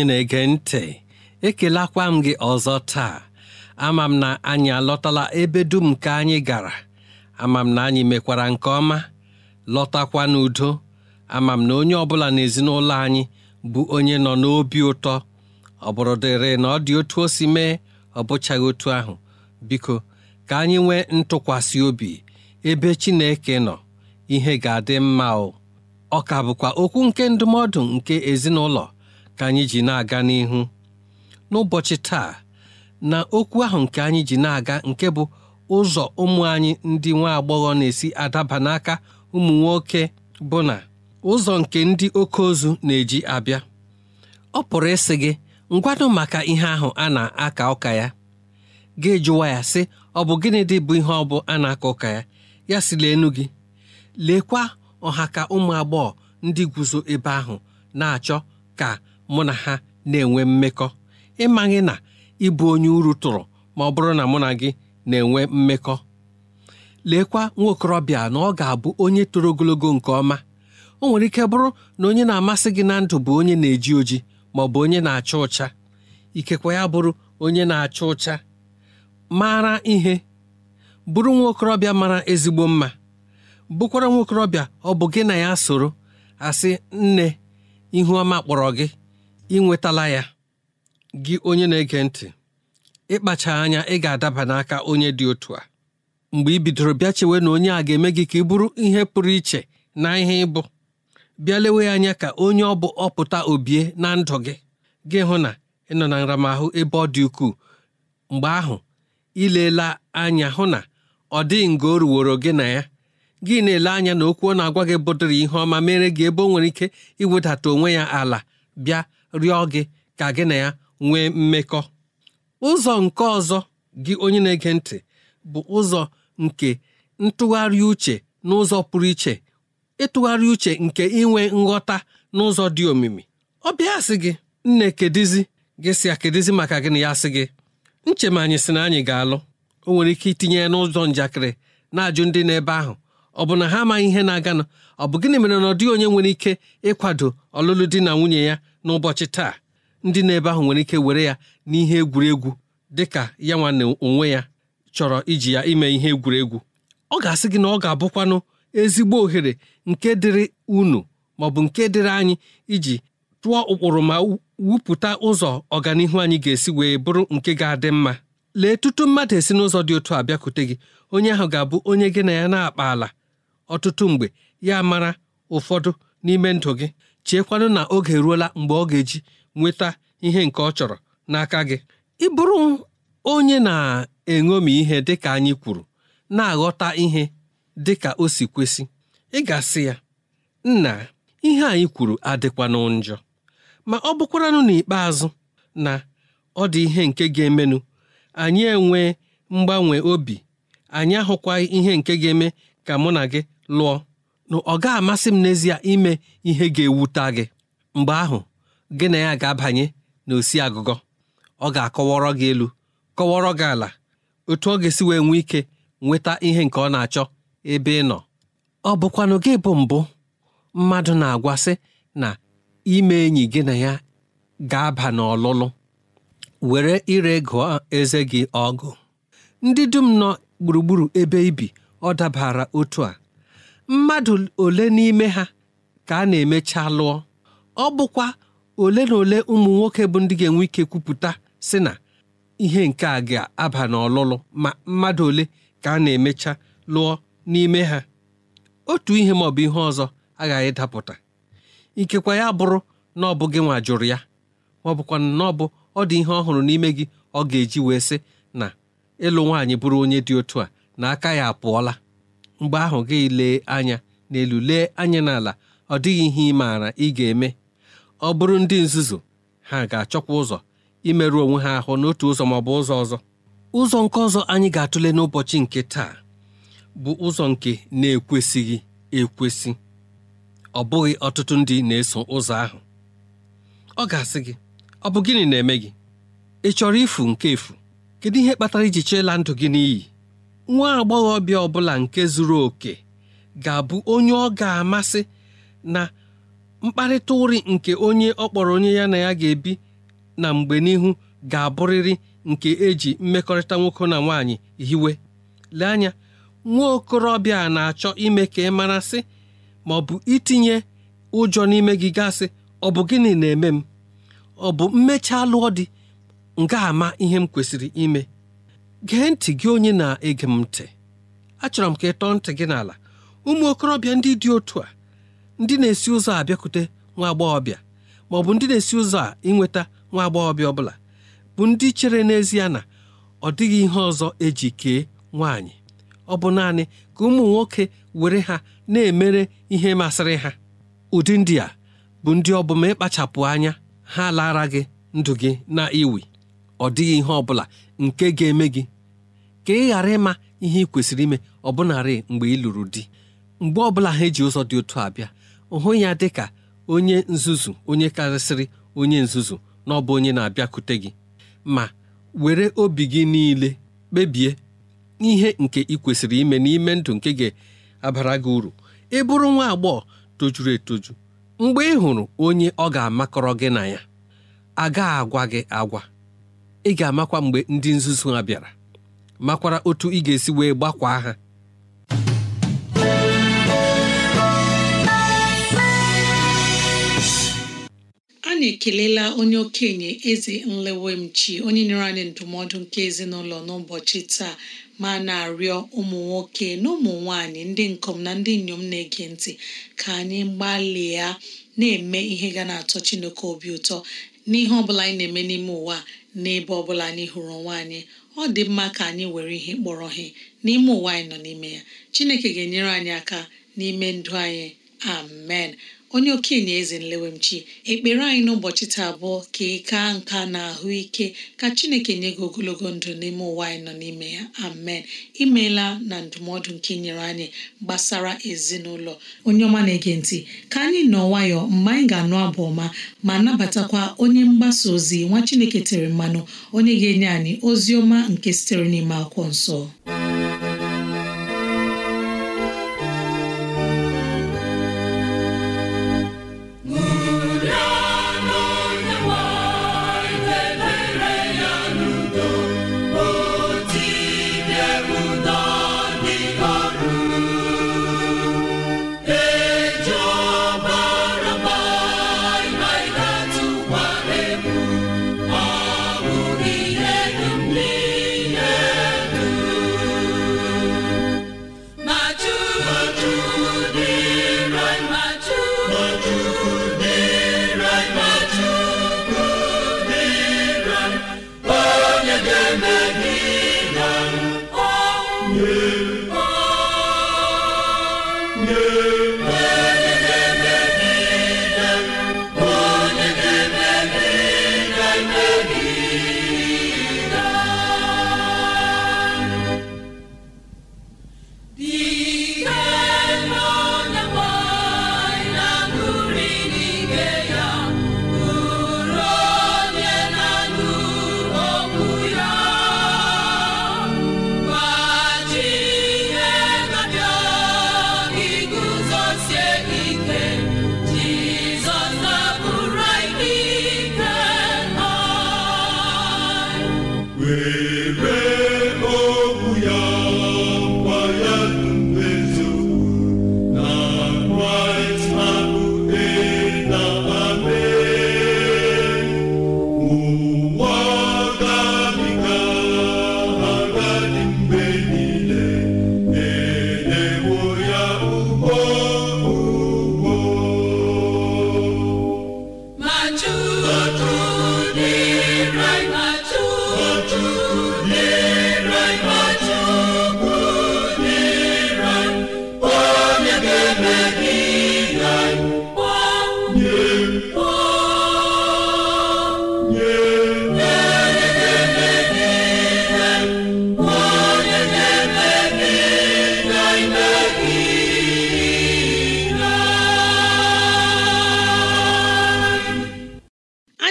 anyị na-ege ntị ekelakwa m gị ọzọ taa ama m na anyị alọtala ebe dum ka anyị gara ama m na anyị mekwara nke ọma lọtakwa n'udo ama m na onye ọbụla n'ezinụlọ anyị bụ onye nọ n'obi ụtọ ọ bụrụ dịrị na ọ dị otu o si mee ọ bụchaghị otu ahụ biko ka anyị nwee ntụkwasị obi ebe Chineke nọ ihe ga-adị mma o ọ ka bụkwa okwu nke ndụmọdụ nke ezinụlọ ka anyị ji na-aga n'ihu n'ụbọchị taa na okwu ahụ nke anyị ji na-aga nke bụ ụzọ ụmụ anyị ndị nwa agbọghọ na-esi adaba n'aka ụmụ nwoke bụ na ụzọ nke ndị oke ozu na-eji abịa ọ pụrụ ịsị gị ngwanụ maka ihe ahụ a na-aka ụka ya ga jụwa ya sị ọ bụ gịnị dị bụ ihe ọ bụ a na-aka ụka ya ya si leenu gị leekwa ọha ka ụmụ agbọghọ ndị guzo ebe ahụ na-achọ ka mụ na ha na-enwe mmekọ ịmaghị na ịbụ onye uru tụrụ ma ọ bụrụ na mụ na gị na-enwe mmekọ leekwa nwa okorobịa na ọ ga-abụ onye toro ogologo nke ọma o nwere ike bụrụ na onye na-amasị gị na ndụ bụ onye na-eji oji ma ọ bụ onye na-acha ụcha ikekwe ya bụrụ onye na-acha ụcha mara ihe bụrụ nwa okorobịa mara ezigbo mma bụkwara nwa okorobịa ọ bụ gị na ya soro asị nne ihu ọma kpọrọ gị ị nwetala ya gị onye na-ege ntị ịkpacha anya ị ga-adaba n'aka onye dị otu a mgbe ị bidoro bịa chewe na onye a ga-eme gị ka ị bụrụ ihe pụrụ iche na ihe ịbụ bịa lewe anya ka onye ọ bụ ọpụta obie na ndụ gị gị hụ na ị nọ na nramahụ ebe ọ dị ukwuu mgbe ahụ ileela anya hụ na ọ dịghị nga o ruworo gị na ya gị na-ele anya na okwu ọ na-agwa gị bụdịrị ihe ọma mere gị ebe ọ nwere ike iwedata onwe ya ala bịa rịọ gị ka gị na ya nwee mmekọ ụzọ nke ọzọ gị onye na-ege ntị bụ ụzọ nke ntụgharị uche n'ụzọ pụrụ iche ịtụgharị uche nke inwe nghọta n'ụzọ dị omimi ọ bịa sị gị nne kedizi gị si ya kedizi maka na ya sị gị nche ma anyị sị na anyị ga-alụ o nwere ike itinye ya n'ụzọ njakịrị na-ajụ ndị n'ebe ahụ ọ bụ na ha amaghị ihe na-aganụ ọ bụ gịnị mere na ọ dịghị onye nwere ike ịkwado ọlụlụ di na nwunye ya n'ụbọchị taa ndị na-ebe ahụ nwere ike were ya n'ihe egwuregwu ka ya nwanne onwe ya chọrọ iji ya ime ihe egwuregwu ọ ga-asị gị na ọ ga-abụkwanụ ezigbo ohere nke dịrị unu maọbụ nke dịrị anyị iji tụọ ụkpụrụ ma wupụta ụzọ ọganihu anyị ga-esi wee bụrụ nke ga-adị mma lee tutu mmadụ esi n'ụzọ dị otu a bịakwute gị onye ahụ ga-abụ onye gị na ya na-akpa ala ọtụtụ mgbe ya mara ụfọdụ n'ime ndụ gị cheekwanụ na oge ruola mgbe ọ ga-eji nweta ihe nke ọ chọrọ n'aka gị ị bụrụ onye na-eṅomi ihe dịka anyị kwuru na-aghọta ihe dịka o si kwesị ị ga-asị ya nna ihe anyị kwuru adịkwanụ njọ ma ọ bụkwaranụ n'ikpeazụ na ọ dị ihe nke ga-emenụ anyị enwee mgbanwe obi anyị ahụkwaghị ihe nke ga-eme ka mụ na gị lụọ na ọ ga-amasị m n'ezie ime ihe ga-ewuta gị mgbe ahụ gị na ya ga-abanye n'osi agụgọ ọ ga-akọwọrọ gị elu kọwọrọ gị ala otu ọ ga-esi wee nwee ike nweta ihe nke ọ na-achọ ebe ị nọ ọ bụkwanụ gị bụ mbụ mmadụ na-agwasị na ime enyi gị na ya ga-aba n'ọlụlụ were ire gụọ eze gị ọgụ ndị dum nọ gburugburu ebe ibi ọ dabara otu a mmadụ ole n'ime ha ka a na-emecha lụọ ọ bụkwa ole na ole ụmụ nwoke bụ ndị ga-enwe ike kwupụta sị na ihe nke a ga-aba n'ọlụlụ ma mmadụ ole ka a na-emecha lụọ n'ime ha otu ihe ma ọ bụ ihe ọzọ agaghị dapụta ikekwa ya bụrụ na ọ bụ gị nwa jụrụ ya ma ọ bụkwa na ọ bụ ọ dị ihe ọhụrụ n'ime gị ọ ga-eji wee sị na ịlụ nwaanyị bụrụ onye dị otu a na aka ya apụọla mgbe ahụ gị lee anya n'elu lee anya n'ala ọ dịghị ihe ị maara ị ga-eme ọ bụrụ ndị nzuzu ha ga-achọkwa ụzọ imerụ onwe ha ahụ n'otu ụzọ ma ọ bụ ụzọ ọzọ ụzọ nke ọzọ anyị ga-atụle n'ụbọchị nke taa bụ ụzọ nke na-ekwesịghị ekwesị ọ bụghị ọtụtụ ndị na-eso ụzọ ahụ ọ ga-asị gị ọ bụ gịnị na-eme gị ị chọrọ ifu nke efu kedu ihe kpatara iji cheela ndụ gị n'iyi nwa agbọghọbịa ọbụla nke zuru oke ga-abụ onye ọ ga-amasị na mkparịta ụrị nke onye ọ kpọrọ onye ya na ya ga-ebi na mgbe n'ihu ga-abụrịrị nke eji mmekọrịta nwoke na nwanyị hiwe lee anya nwa okorobịa na-achọ ime ka ị mara sị ma ọ bụ itinye ụjọ n'ime gị gasị ọ bụ gịnị na-eme m ọ bụ mmechaa lụọ dị nga ama ihe m kwesịrị ime gee ntị gị onye na-ege m ntị achọrọ m ka ị tọọ ntị gị n'ala ụmụ okorobịa ndị dị otu a ndị na-esi ụzọ a bịakute nwa agbọghọbịa maọbụ bụ ndị na-esi ụzọ a ịnweta nwa agbọghọbịa bụla bụ ndị chere n'ezie na ọ dịghị ihe ọzọ eji kee nwaanyị ọ bụ naanị ka ụmụ nwoke were ha na-emere ihe masịrị ha ụdị ndị a bụ ndị ọ ịkpachapụ anya ha lara gị ndụ gị na iwi ọ dịghị ihe ọ bụla nke ga-eme gị ka ị ghara ịma ihe ị kwesịrị ime ọbụnarị mgbe ị lụrụ di mgbe ọbụla ha eji ụzọ dị otu abịa hụ ya dị ka onye nzuzu onye karịsịrị onye nzuzu na ọ bụ onye na-abịakute gị ma were obi gị niile kpebie ihe nke ị kwesịrị ime n'ime ndụ nke ga-abara gị uru ị bụrụ nwa agbọghọ tojuru etoju mgbe ị hụrụ onye ọ ga-amakọrọ gị na ya agaghị agwa gị agwa ị ga-amakwa mgbe ndị nzuzu ha bịara makwara otu ị ga-esi wee gbakwaa ha anyị ekelela onye okenye eze nlewemchi onye nyere anyị ndụmọdụ nke ezinụlọ n'ụbọchị taa ma na-arịọ ụmụ nwoke na ụmụ nwanyị ndị nkom na ndị inyom na-ege ntị ka anyị gbalịa na-eme ihe ga na-atọ Chineke obi ụtọ n'ihe ọ bụla anyị na-eme n'ime ụwa n'ebe ọbụla bụla anyị hụrụ onwe anyị ọ dị mma ka anyị were ihe kpọrọ ihe n'ime ụwa anyị nọ n'ime ya chineke ga-enyere anyị aka n'ime ndụ anyị amen onye okenye eze nlewemchi ekpere anyị n'ụbọchị taa abụọ ka ị kaa nka na ahụ ike ka chineke nye gị ogologo ndụ n'ime ụwa anyị nọ n'ime ya amen imeela na ndụmọdụ nke nyere anyị gbasara ezinụlọ onye ọma na-ege ntị ka anyị nọ nwayọọ mgbe anyị ga-anụ abụ ọma ma nabatakwa onye mgbasa ozi nwa chineke tere mmanụ onye ga-enye anyị ozi ọma nke sitere n'ime akwụkwọ nsọ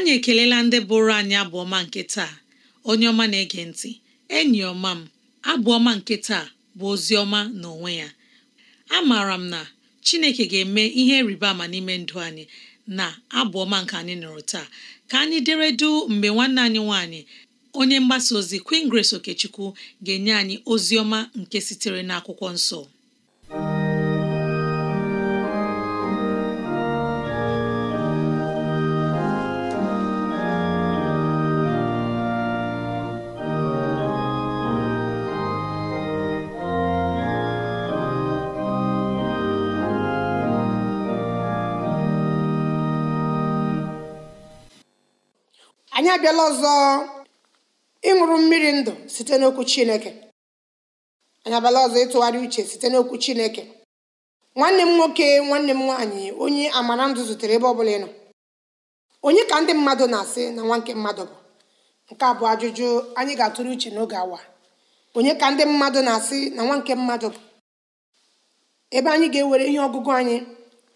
anyị ekelela ndị bụrụ anyị abụọma nke taa onye ọma na-ege ntị enyi ọma m abụọma nke taa bụ ozi ọma na onwe ya amaara m na Chineke ga-eme ihe rịba ama n'ime ndụ anyị na abụọma nke anyị nụrụ taa ka anyị deredu mgbe nwanne anyị nwanyị onye mgbasa ozi Queen Grace Okechukwu ga-enye anyị ozi ọma nke sitere n'akwụkwọ nsọ abịala ọzọ ịṅụrụ mmiri ndụ site n'okwu chineke anyị abịala ọzọ ịtụgharị uche site n'okwu chineke nwanne m nwoke nwanne m nwaanyị onye amara ndụ zutere ebe ọ bụla ịnọ onye ka ndị mmadụ na-asị na nwa nke mmadụ bụ nke a bụ ajụjụ anyị ga-atụrụ uche n'oge awa onye ka ndị mmadụ na-asị na nwa nke mmadụ bụ ebe anyị ga-ewere ihe ọgụgụ anyị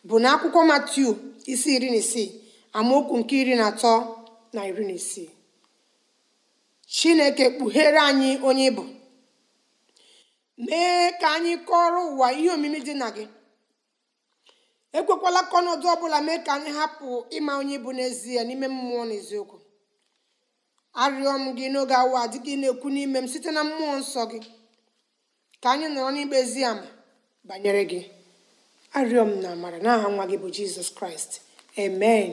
bụ na akwụkwọ Matiu isi iri na isii amaokwu nke iri na atọ na iri na isii chineke kpughere anyị onye ịbụ mee ka anyị kọrọ ụwa ihe omimi dị na gị ekwekwala kọnọdụ ọ ọbụla mee ka anyị hapụ ịma onye ịbụ n'ezie n'ime mmụọ na eziokwu arịọ m gị n'oge awa dị gị na-ekwu n'ime m site na mmụọ nsọ gị ka anyị nọrọ n'ikpe ezi ama banyere gị arịọ na amara n'aha nwa gị bụ jizọs kraịst amen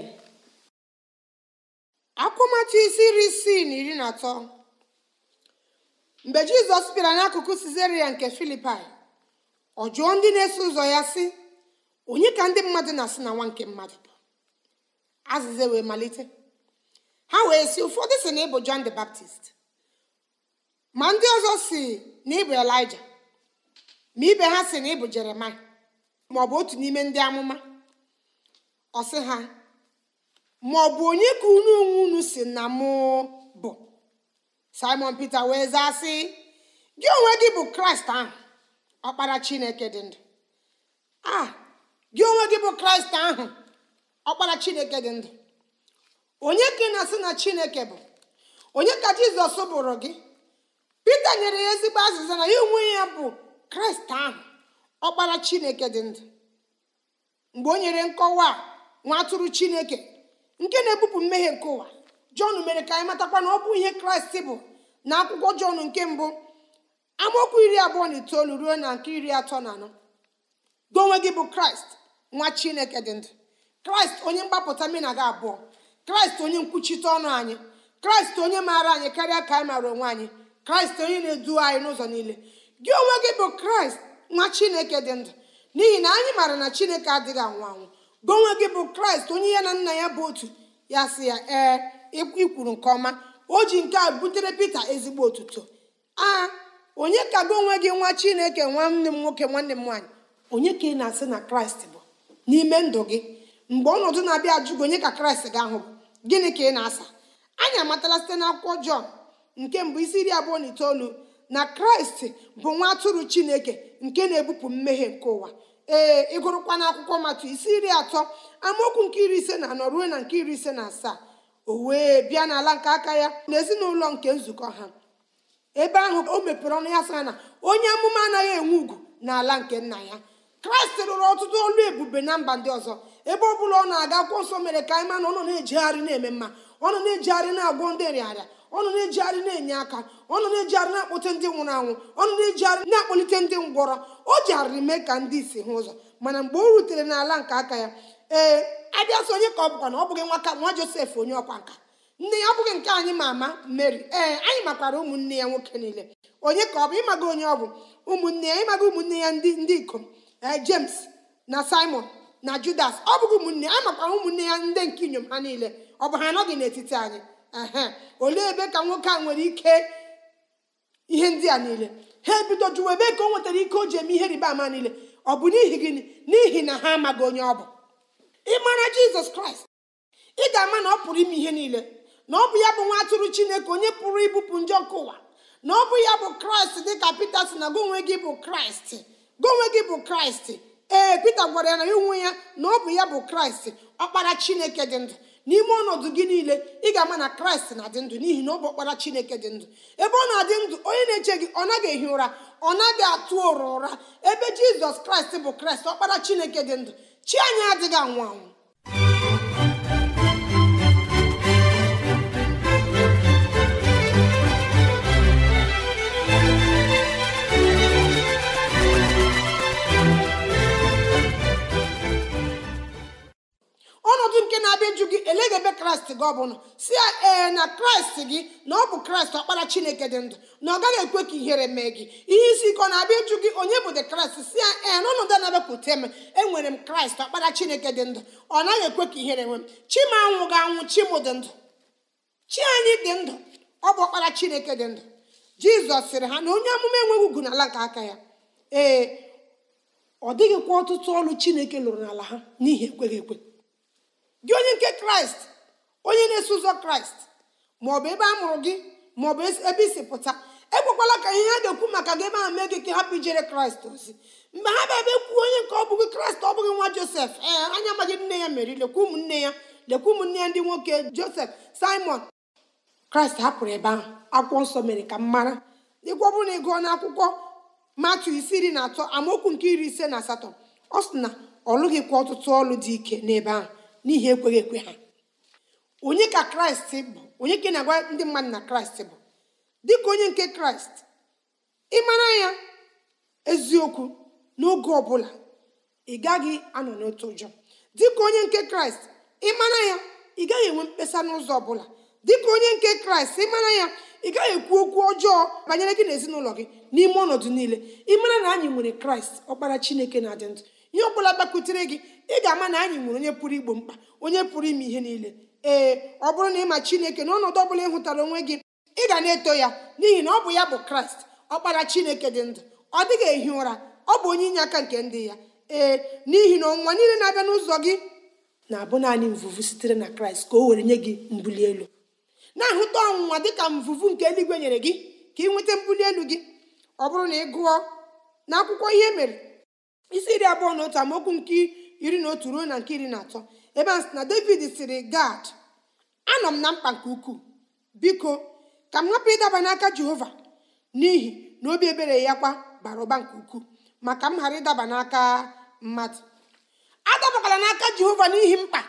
akwụmatụ isi iri isii na iri na atọ mgbe jizọs bịara n'akụkụ sizeria nke filipai ọ jụọ ndị na-eso ụzọ ya sị onye ka ndị mmadụ na-asị na nwa nke mmadụ bụ azịza wee malite ha wee si ụfọdụ si na ịbụ John the Baptist ma ndị ọzọ si na ịbụ Elijah ma ibe ha si na ịbụ Jeremaịa ma otu n'ime ndị amụma ọ sị ha ma ọ bụ onye ka unu onwe unu si na mụ bụ simon peter wee zaa sị gị onwe gị bụ kraịst ahụ ọkpara chineke dị ndụ a gị onwe gị bụ kraịst ahụ ọkpara chineke dị ndụ onye ka ị na-asị na chineke bụ onye ka jizọs bụrụ gị peter nyere ya ezigbo azịza na ya onwe ya bụ kraịst ahụ ọkpara chineke dị ndụ mgbe o nyere nkọwa nwa atụrụ chineke nke na-ebupụ mmehie nke ụwa jọn mere ka anyị matakwa na ọ bụ ihe kraịst bụ na akwụkwọ jon nke mbụ amaokwu iri abụọ na itoolu ruo na nke iri atọ na anọ gị onwe gị bụ kraịst nwa chineke dị ndụ kraịst onye mgbapụta mmena gị abụọ kraịst onye nkwuchite ọnụ anyị kraịst onye maara anyị karịa ka anyị maara onwe anyị kraịst onye na-edu anyị n'ụzọ niile gị onwe gị bụ kraịst nwa chineke dị ndụ n'ihi na anyị maara na chineke adịghị anwụ anwụ gị onwe gị bụ kraịst onye ya na nna ya bụ otu ya sị ya ee ikwuru nke ọma o ji nke a butere pita ezigbo otuto a onye ka gị onwe gị nwa chineke nwanne m nwoke nwanne m nwaanyị onye ka ị na-asị na kraịst bụ n'ime ndụ gị mgbe ọnọdụ na-abịa ajụ gị onye ka kraịst ga-ahụ gịnị ka ị na-asa anyị amatala site n'akwụkwọ jọn nke mbụ isi iri abụọ na itoolu na kraịst bụ nwa atụrụ chineke nke na-ebupụ mmehie nke ụwa ee ịgụrụkwa n'akwụkwọ matụ isi iri atọ amaokwu nke iri ise na anọ ruo na nke iri ise na asaa o wee bịa n'ala nke aka ya na ezinụlọ nke nzukọ ha ebe ahụ o mepere ọnụ ya sara na onye amụma anaghị enwe ugwu n'ala nke nna ya kraịst rụrụ ọtụtụ olu ebube na mba ndị ọzọ ebe ọ bụla ọ na-aga akwụkwọ nsọ mere ka anyị ma na ọ nọ na-ejegharị na-eme mma ọ nọ na-ejegharị na-agwọ ndị nrịarịa ọnụ na-ejigharị na-enye aka ọnụ na-ejigharị na akpụte ndị nwụrụ anwụ ọnụ na-ejigharị na-akpọlite ndị ngwọrọ o jigharịrị mee ka ndị isi hụ ụzọ mana mgbe o rutere n'ala nke aka ya ee abịa sị onye ka ọ bụkwa na ọ bụghị nwaka nwa josef onye ọkwa nka nne ya ọ bụghị nke anyị ma ama Mary ee anyị makwara ụmụnne ya nwoke niile onye ka ọ bụ ịmaga onye ọ bụ ụmụnne ya ịmaga ụmụnne ya ndị ndị ikom james na simon na judas ọ bụghị ụmụnne ya makwara ụmụnne ya ndị nke inyom ha niile ọ bụ ha anọghị n'etiti anyị olee ebe ka nwoke a nwere ike ihe ndị a niile ha ebido jụwa ebe ka o nwetara ike o ji eme ihe rịba ama niile ọ bụ n'ihi gịnị n'ihi na ha amaghị onye ọ bụ ịmara jizọs kraịst ị ga-ama na ọ pụrụ ime ihe niile na ọ bụ ya bụ nwa atụrụ chineke onye pụrụ ibupụ njọ ọkụ ụwa na ọ bụ ya bụ kraịst dịka pita si na gị gị bụ kraịst gị gị bụ kraịst ee pita gwara ya na ya onwe ya na ọ bụ ya bụ kraịst ọkpara chineke dị ndụ n'ime ọnọdụ gị niile ị ga-ama na kraịst na-adị ndụ n'ihi na ọ bụ ọkpara chineke dị ndụ ebe ọ na-adị ndụ onye na-eche gị ọ naghị ehi ụra ọ naghị atụ ụra ụra ebe jizọs kraịst bụ kraịst ọkpara chineke dị ndụ chi anya adịghị anwụ anwụ gị ọ si ya ee na kraịst gị na ọ bụ kraịst ọkpara chineke dị ndụ na ọ gaghị ekwe ka ihere mee gị ihe isi ike ọ na-abịa ịjụ gị onye bụ de kraịst si ya ee na ọnọdụ na-abịapụta m enwere m kraịst ọkpara chineke dị ndụ ọ naghị ekwe ka ihere nwe m chima anwụ ga-anwụ chimụ dị ndụ chi anyị dị ndụ ọ bụ ọkpara chineke dị ndụ jizọs sịrị ha na onye amụma enweghị ugwu n'ala nke aka ya ee ọ dịghịkwa ọtụtụ ọrụ chineke lụrụ n'ala ha n'ihi ekweghị ekwe gị onye nke kraịst onye na-eso ụzọ kraịst maọbụ ebe a mụrụ gị maọbụ ebe isi pụta ekwekwala ka ihe ha ga-ekwu maka gị ebe ahụ mee gị ka hapụ ijere kraịst ozi mgbe ha bịa ebe kwu onye nke ọ bụghị kraịst ọ bụghị nwa josef ee anya magị nne ya meri lekwa ụmụnne ya lekwa ụmụnne ya ndị nwoke josef simon kraịst hapụrụ ebe ahụ akwụkwọ nsọ mere ka m mara ịgwọ bụrụ na ị gụọ n'akwụkwọ matu isi iri na atọ amaokwu nke iri ise na asatọ ọ sị na ọ lụghịkwa ọtụtụ ọlụ dị ike n'ebe ahụ n'ihi ekweghị ekwe ha onye ka kraịst bụ onye ka na-agwa ndị mmadụ na kraịst bụ dịka onye nke kraịst mara ya eziokwu n'oge ọbụla ị gaghị anọ n'otu ụjọ dịka onye nke kraịst mara ya ị gaghị enwe mkpesa n'ụzọ ọbụla dịka onye nke kraịst mara ya ị gaghị ekwu okwu ọjọọ banyere gị na ezinụlọ gị n'ime ọnọdụ niile ịmara na anyị nwere kraịst ọkpara chineke na-adị ndụ ihe ọ bụla gbakwutere gị ị ga-ama na anyị nwere onye pụrụ igbo mkpa onye pụrụ ime ihe niile ee ọ bụrụ na ịma chineke na ọnọdụ ọbụla ị hụtara onwe gị ị ga na-eto ya n'ihi na ọ bụ ya bụ kraịst ọkpara chineke dị ndụ ọ dịghị ehi ụra ọ bụ onye inye aka nke ndị ya ee n'ihi na ọnwa niile na-abịa n'ụzọ gị na-abụ naanị mvuvu sitere na kraịst ka o were nye gị mbuli elu na-ahụta ọnwụnwa dịka mvụvụ nke eluigwe nyere gị ka ị nweta mbuli elu gị ọ bụrụ na ị gụọ na akwụkwọ ihe e mere isi iri abụọ na otu amaokwu nke iri na otu ruo na nke iri na atọ ebe a sị na david siri gad anọ m na mkpa nke ukwuu biko ka m hapụ ịdaba n'aka jehova n'ihi na obi ebere ya kwa bara ụba nke ukwuu maka m ghara ịdaba n'aka mmadụ adabakwala n'aka jehova n'ihi mkpa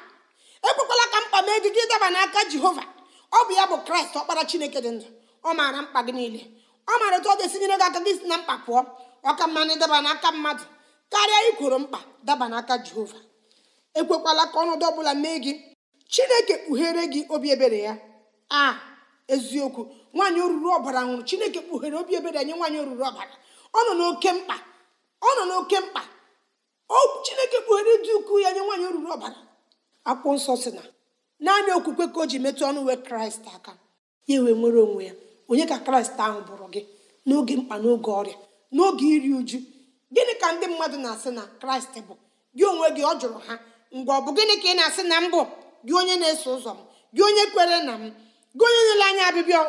ekwekwala ka mkpa mee gị gị ịdaba n'aka jehova ọ bụ ya bụ kraịst ọkpara chineke dị ndụ ọ maara mkpa gị niile ọ maara otu ọ ga-esinyere gị aka gị si na mkpa pụọ ọ ka mma na ịdaba n'aka mmadụ karịa ikworo mkpa daba n'aka jehova ekwekwala ka ọnọdụ ọbụla mee gị chineke kpughere gị obi ebere ya a eziokwu nwaanyị oruru ọbara nwụrụ chineke kpughere obi ebere nye nwaanyị oruru ọbara ọ nọ n'oke mkpa ọ nọ n'oke mkpa chineke kpughere dị ukwuu ya nye nwaanyị oruru ọbara akwụkwọ nsọ si na naanị okwukwe ka o ji metụ ọnụ nwe kraịst aka ya ewe nwere onwe ya onye ka kraịst ahụ bụrụ gị n'oge mkpa n'oge ọrịa n'oge iri uju gịnị ka ndị mmadụ na-asị na kraịst bụ gị onwe gị ọ jụrụ ha ngwa ọ bụ gịnị ka ị na-asị na mbụ gị onye na-eso ụzọ m gị onye kwere na m gị onye nyere anya ọbịbịa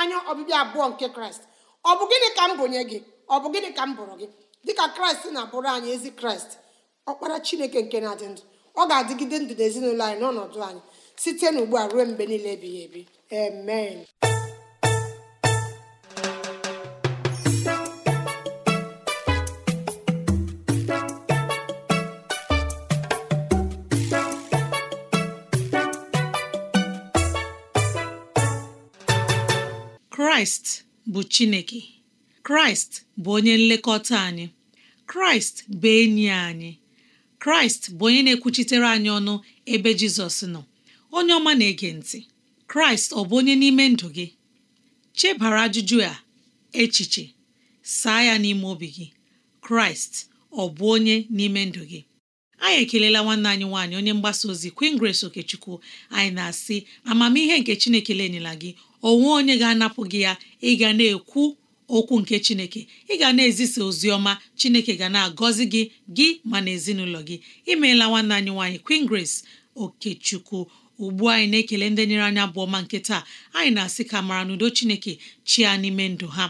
anya ọbịbịa abụọ nke kraịst ọ bụ gịnị ka m bụnye gị ọ bụ gịnị ka m bụrụ gị dịka kraịst na-abụrụ anyị ezi kraịst ọkpara chineke nke na-adị ndụ ọ ga-adịgide ndụ n'ezinụlọ anyị n'ọnọdụ anyị site n'ugbu a ruo mgbe niile ebighị ebi amen kraịst bụ chineke kraịst bụ onye nlekọta anyị kraịst bụ enyi anyị kraịst bụ onye na-ekwuchitere anyị ọnụ ebe jizọs nọ onye ọma na-ege ntị kraịst ọ bụ onye n'ime ndụ gị chebara ajụjụ a echiche saa ya n'ime obi gị kraịst ọ bụ onye n'ime ndụ gị anyị ekelela nwanne anyị nwaanyị onye mgbasa ozi Queen Grace Okechukwu anyị na-asị amamihe nke Chineke lenyela gị onwe onye ga-anapụ gị ya ị ga na-ekwu okwu nke chineke ị ga na-ezisa ozi ọma chineke ga na-agọzi gị gị ma na ezinụlọ gị imeela nwanne anyị nwaanyị Queen Grace Okechukwu ugbu anyị na-ekele ndị nyere anyị abụọ ma nke taa anyị na-asị ka mara n'udo chineke ya n'ime ndụ ha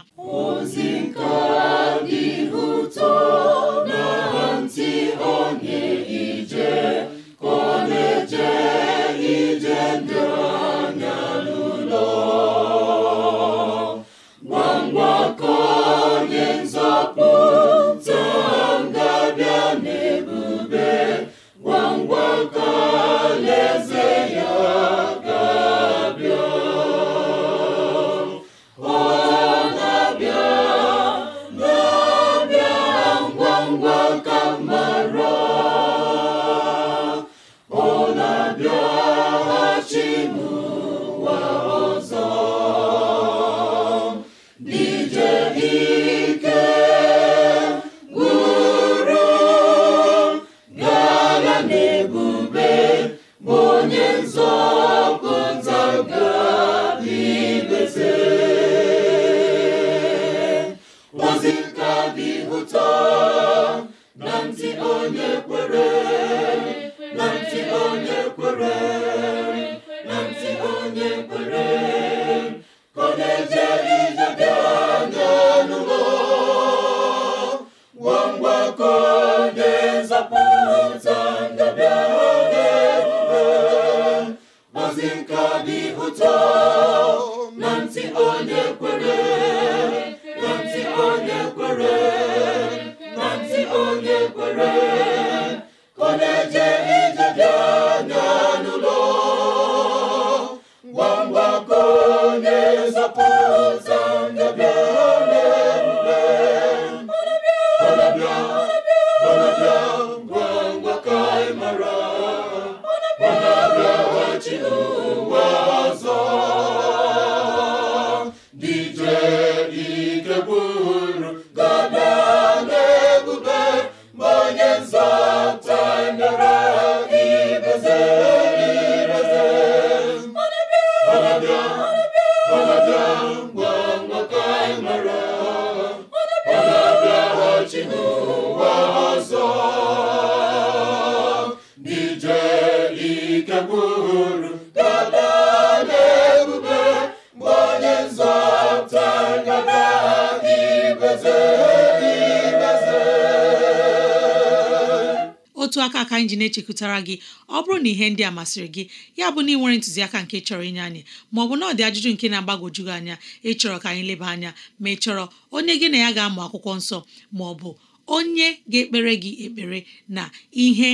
anyị ji na-echekwutara gị ọ bụrụ na ihe ndị a masịrị gị ya bụ na ị nwere ntụziaka nke chọrọ inye anyị ma ọ bụ na ọ dị ajụjụ nke na-agbagwoju gị anya ịchọrọ ka anyị leba anya ma ị chọrọ onye gị na ya ga-amụ akwụkwọ nsọ ma ọ bụ onye ga-ekpere gị ekpere na ihe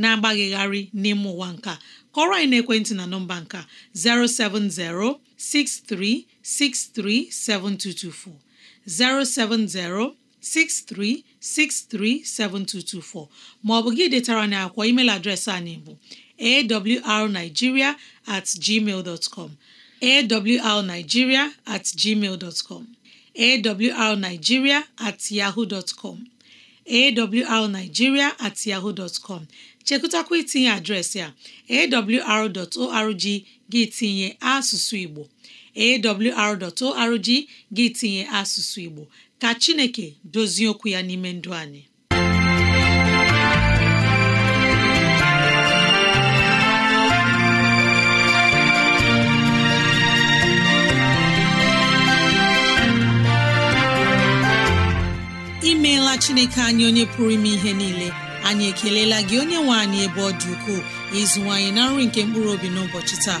na-agbaghịgharị n'ime ụwa nka kọrọ anyị n'ekwentị na nọmba nka 07063637224 070 63637224 maọbụ gị detara na akwụkwọ email adreesị anyị bụ awrnigeria at gmail dot com awrnigeria at gmail dot com awrnigeria at yahoo dot com awrnigeria at yahoo dot com chekụtakwa itinye adreesị a awr.org gị tinye asụsụ Igbo awr.org gị tinye asụsụ Igbo ka Chineke dozie okwu ya n'ime ndụ anyị imeela Chineke anyị onye pụrụ ime ihe niile anyị ekelela gị onye nwe anyị ebe ọ dị ukwuu ịzụwanyị na nri nke mkpụrụ obi n'ụbọchị taa